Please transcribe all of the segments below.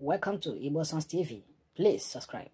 Welcome to Igbo Sons TV. Please subscribe.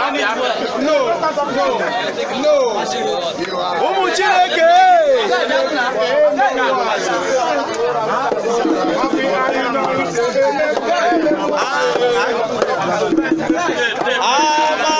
No, no, no. Ụmụ Chineke! Amen.